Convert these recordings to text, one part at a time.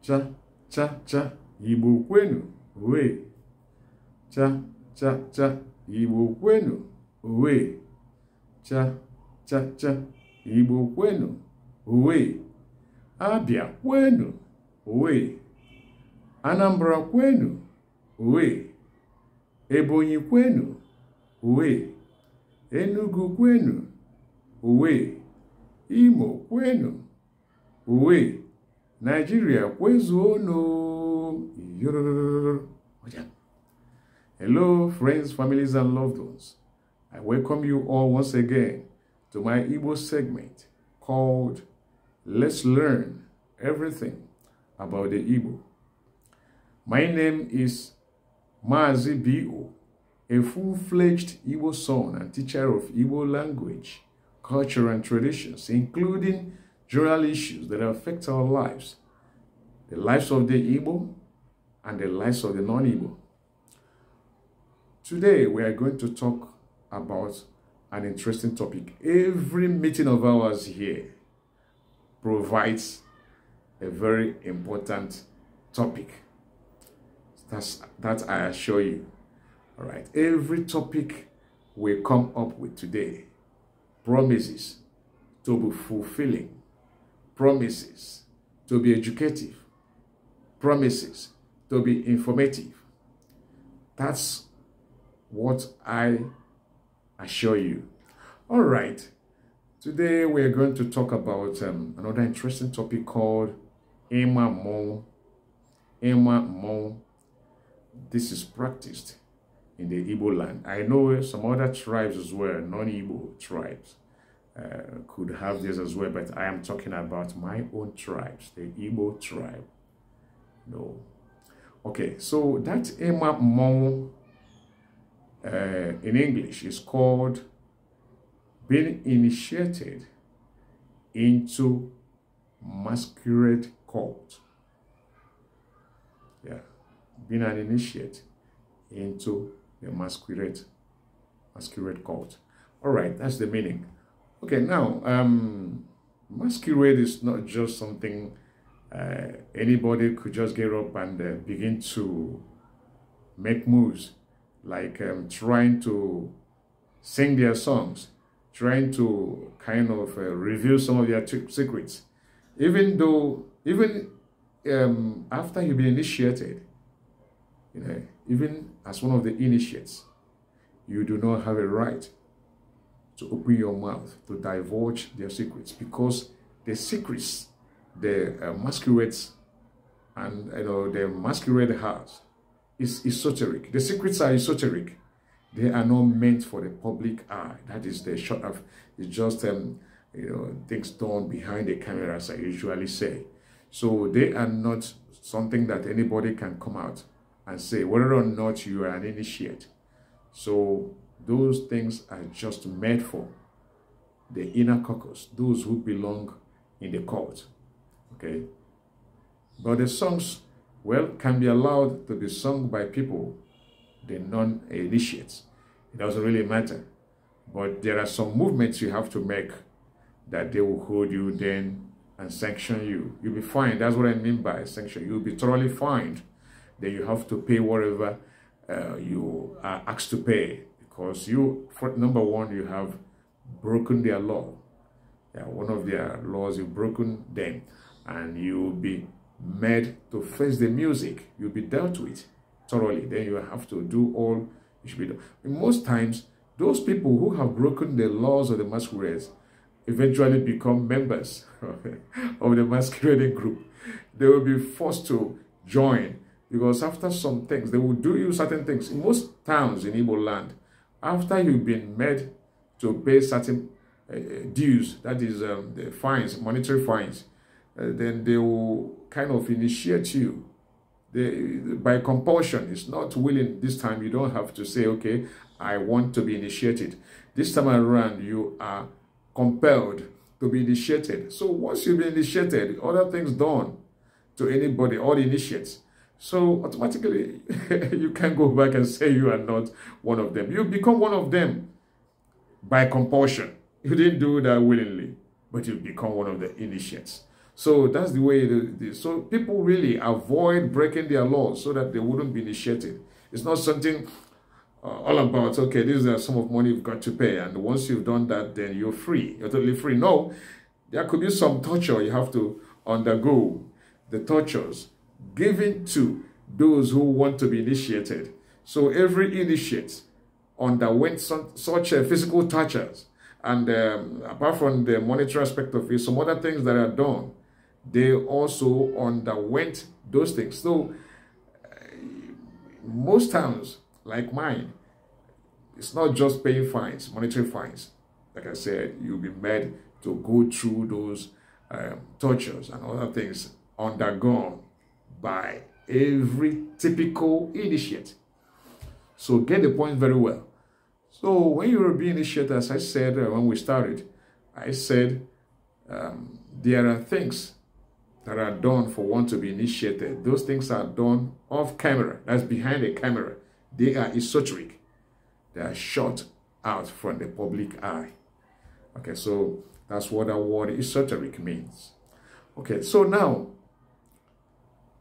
cha cha cha igbo kwenu owe cha cha cha igbo kwenu owe cha cha cha igbo kwenu owe abịa kwenu owe anambra kwenu owe ebonyi kwenu owe enugu kwenu owe imo kwenu owe Nigeria, Kwezuono. Hello, friends, families, and loved ones. I welcome you all once again to my Igbo segment called Let's Learn Everything About the Igbo. My name is Mazi Bio, a full-fledged Igbo son and teacher of Igbo language, culture, and traditions, including general issues that affect our lives, the lives of the Igbo and the lives of the non-Igbo. Today, we are going to talk about an interesting topic. Every meeting of ours here provides a very important topic. That's, that I assure you. All right. Every topic we come up with today promises to be fulfilling promises to be educative, promises to be informative. That's what I assure you. All right. Today we are going to talk about um, another interesting topic called Emma Mo. Emma Mo. This is practiced in the Igbo land. I know some other tribes as well, non-Igbo tribes uh, could have this as well, but I am talking about my own tribes, the Ibo tribe. No. Okay, so that Emma Mon uh, in English is called being initiated into masquerade cult. Yeah, being an initiate into the masquerade, masquerade cult. All right, that's the meaning. Okay, now, um, masquerade is not just something uh, anybody could just get up and uh, begin to make moves, like um, trying to sing their songs, trying to kind of uh, reveal some of their secrets. Even though, even um, after you've been initiated, you know, even as one of the initiates, you do not have a right to open your mouth to divulge their secrets because the secrets the uh, masquerades and you know the masquerade has is esoteric the secrets are esoteric they are not meant for the public eye that is the short of it's just um you know things done behind the camera as i usually say so they are not something that anybody can come out and say whether or not you are an initiate so those things are just made for the inner caucus, those who belong in the court. Okay? But the songs, well, can be allowed to be sung by people, the non-initiates. It doesn't really matter. But there are some movements you have to make that they will hold you then and sanction you. You'll be fine. That's what I mean by sanction. You'll be thoroughly fined. Then you have to pay whatever uh, you are asked to pay because you, for, number one, you have broken their law. Yeah, one of their laws, you've broken them, and you'll be made to face the music. You'll be dealt with thoroughly. Then you have to do all you should be done. Most times, those people who have broken the laws of the masquerades eventually become members of the masquerading group. They will be forced to join because after some things, they will do you certain things. In most towns in Igbo land, after you've been made to pay certain uh, dues, that is um, the fines, monetary fines, uh, then they will kind of initiate you. They, by compulsion, it's not willing this time. You don't have to say, okay, I want to be initiated. This time around, you are compelled to be initiated. So once you've been initiated, other things done to anybody, all initiates, so automatically, you can go back and say you are not one of them. You become one of them by compulsion. You didn't do that willingly, but you become one of the initiates. So that's the way it is. So people really avoid breaking their laws so that they wouldn't be initiated. It's not something uh, all about, okay, this is a sum of money you've got to pay. And once you've done that, then you're free. You're totally free. No, there could be some torture you have to undergo. The tortures given to those who want to be initiated. So every initiate underwent some, such a physical touches. And um, apart from the monetary aspect of it, some other things that are done, they also underwent those things. So uh, most towns, like mine, it's not just paying fines, monetary fines. Like I said, you'll be made to go through those um, tortures and other things undergone by every typical initiate. So get the point very well. So when you're being initiated, as I said uh, when we started, I said um, there are things that are done for one to be initiated. Those things are done off camera, that's behind the camera. They are esoteric. They are shut out from the public eye. Okay, so that's what the word esoteric means. Okay, so now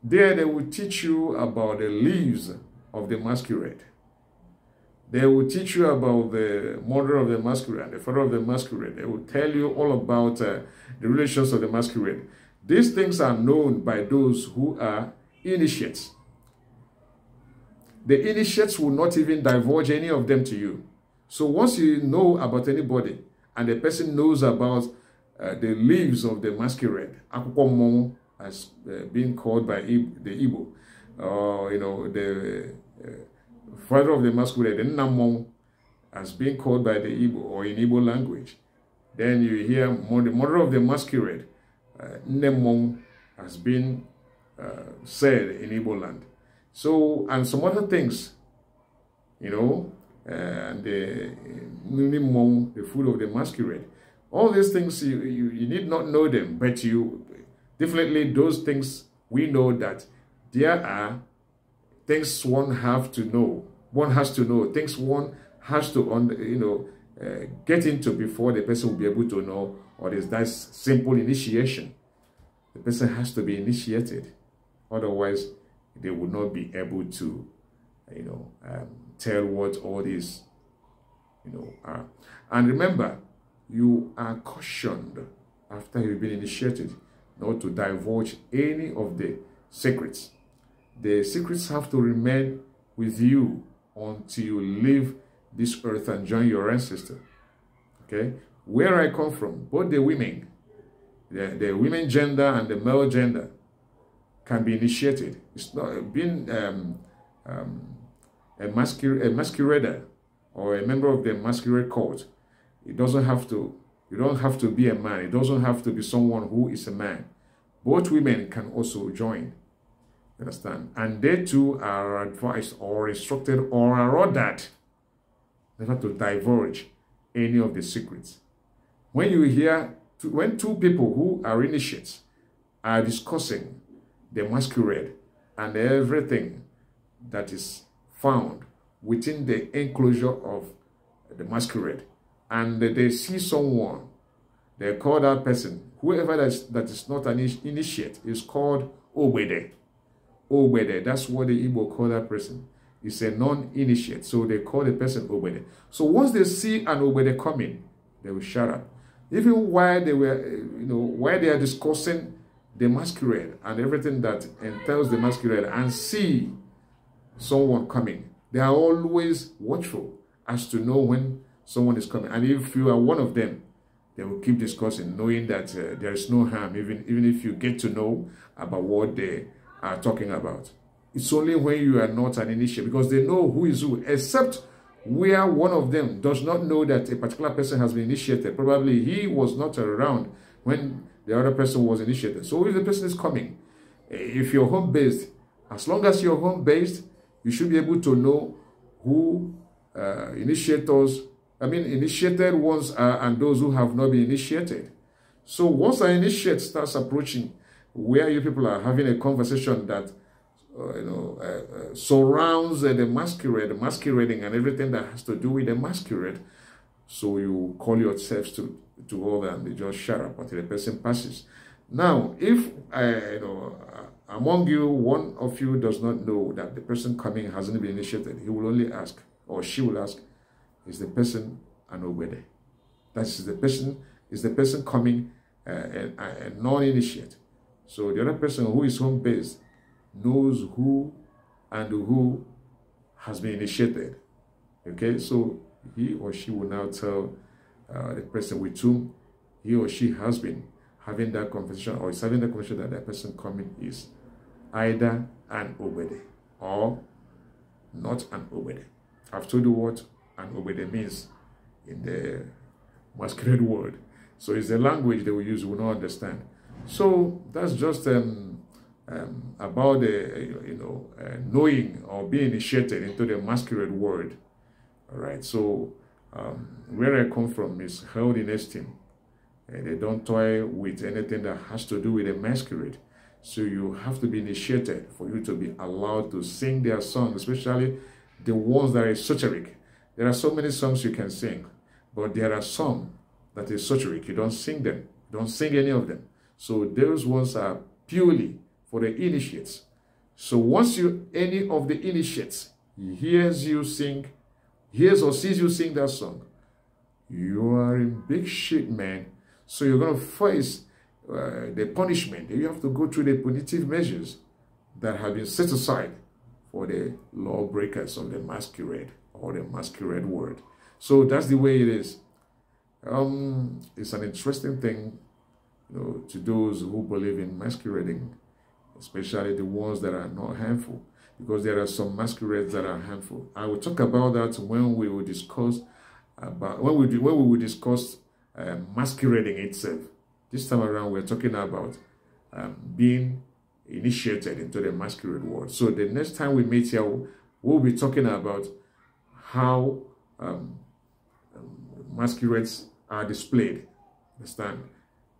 there they will teach you about the leaves of the masquerade. They will teach you about the mother of the masquerade, the father of the masquerade. They will tell you all about uh, the relations of the masquerade. These things are known by those who are initiates. The initiates will not even divulge any of them to you. So once you know about anybody and the person knows about uh, the leaves of the masquerade, as uh, being called by the Igbo, or uh, you know the uh, father of the masquerade, the Namon, as being called by the Igbo or in Igbo language. Then you hear the mother of the masquerade, uh, has been uh, said in Igbo land. So, and some other things, you know, and the Nimon, the food of the masquerade. All these things, you, you, you, need not know them, but you Definitely, those things we know that there are things one have to know. One has to know things one has to, on you know, uh, get into before the person will be able to know. Or is that simple initiation. The person has to be initiated, otherwise they would not be able to, you know, um, tell what all these, you know, are. And remember, you are cautioned after you've been initiated not to divulge any of the secrets. The secrets have to remain with you until you leave this earth and join your ancestor. Okay? Where I come from, both the women, the, the women gender and the male gender can be initiated. It's not being um, um, a, masquer a masquerader or a member of the masquerade court. It doesn't have to you don't have to be a man. It doesn't have to be someone who is a man. Both women can also join. Understand? And they too are advised or instructed or are ordered never to divulge any of the secrets. When you hear, when two people who are initiates are discussing the masquerade and everything that is found within the enclosure of the masquerade, and they see someone, they call that person, whoever that is, that is not an initiate, is called Obede. Obede, that's what the Igbo call that person. It's a non-initiate, so they call the person Obede. So once they see an Obede coming, they will shut up. Even while they were, you know, while they are discussing the masquerade and everything that entails the masquerade and see someone coming, they are always watchful as to know when someone is coming. And if you are one of them, they will keep discussing, knowing that uh, there is no harm, even, even if you get to know about what they are talking about. It's only when you are not an initiate, because they know who is who, except where one of them does not know that a particular person has been initiated. Probably he was not around when the other person was initiated. So if the person is coming, eh, if you're home-based, as long as you're home-based, you should be able to know who uh, initiators I mean, initiated ones are, and those who have not been initiated. So once an initiate starts approaching, where you people are having a conversation that uh, you know uh, uh, surrounds uh, the masquerade, masquerading, and everything that has to do with the masquerade, so you call yourselves to to order and they just share up until the person passes. Now, if uh, you know uh, among you one of you does not know that the person coming hasn't been initiated, he will only ask or she will ask, is the person an obede. That's the person is the person coming uh, and, uh, a non-initiate. So the other person who is home-based knows who and who has been initiated. Okay, so he or she will now tell uh, the person with whom he or she has been having that conversation or is having the conversation that that person coming is either an obede or not an obede. I've told you what and the means in the masquerade world. So it's a language they will use, We will not understand. So that's just um, um, about the, uh, you know, uh, knowing or being initiated into the masquerade world. All right. So um, where I come from is held in esteem. And uh, they don't toy with anything that has to do with the masquerade. So you have to be initiated for you to be allowed to sing their songs, especially the ones that are esoteric there are so many songs you can sing, but there are some that is esoteric. You don't sing them. You don't sing any of them. So those ones are purely for the initiates. So once you any of the initiates hears you sing, hears or sees you sing that song, you are in big shit, man. So you're gonna face uh, the punishment. You have to go through the punitive measures that have been set aside for the lawbreakers of the masquerade or the masquerade world. So that's the way it is. Um, it's an interesting thing you know, to those who believe in masquerading, especially the ones that are not harmful, because there are some masquerades that are harmful. I will talk about that when we will discuss about when we when we will discuss uh, masquerading itself. This time around, we're talking about um, being initiated into the masquerade world. So the next time we meet here, we'll be talking about how um, um, masquerades are displayed. Understand?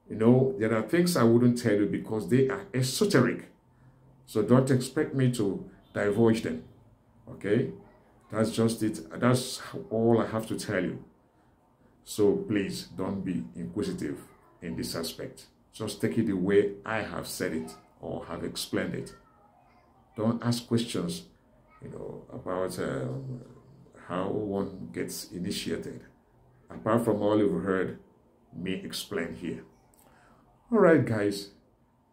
You know, there are things I wouldn't tell you because they are esoteric. So don't expect me to divulge them. Okay? That's just it. That's all I have to tell you. So please don't be inquisitive in this aspect. Just take it the way I have said it or have explained it. Don't ask questions, you know, about. Uh, how one gets initiated. Apart from all you've heard me explain here. All right, guys,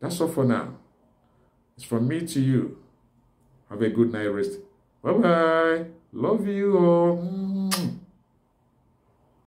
that's all for now. It's from me to you. Have a good night rest. Bye bye. Love you all.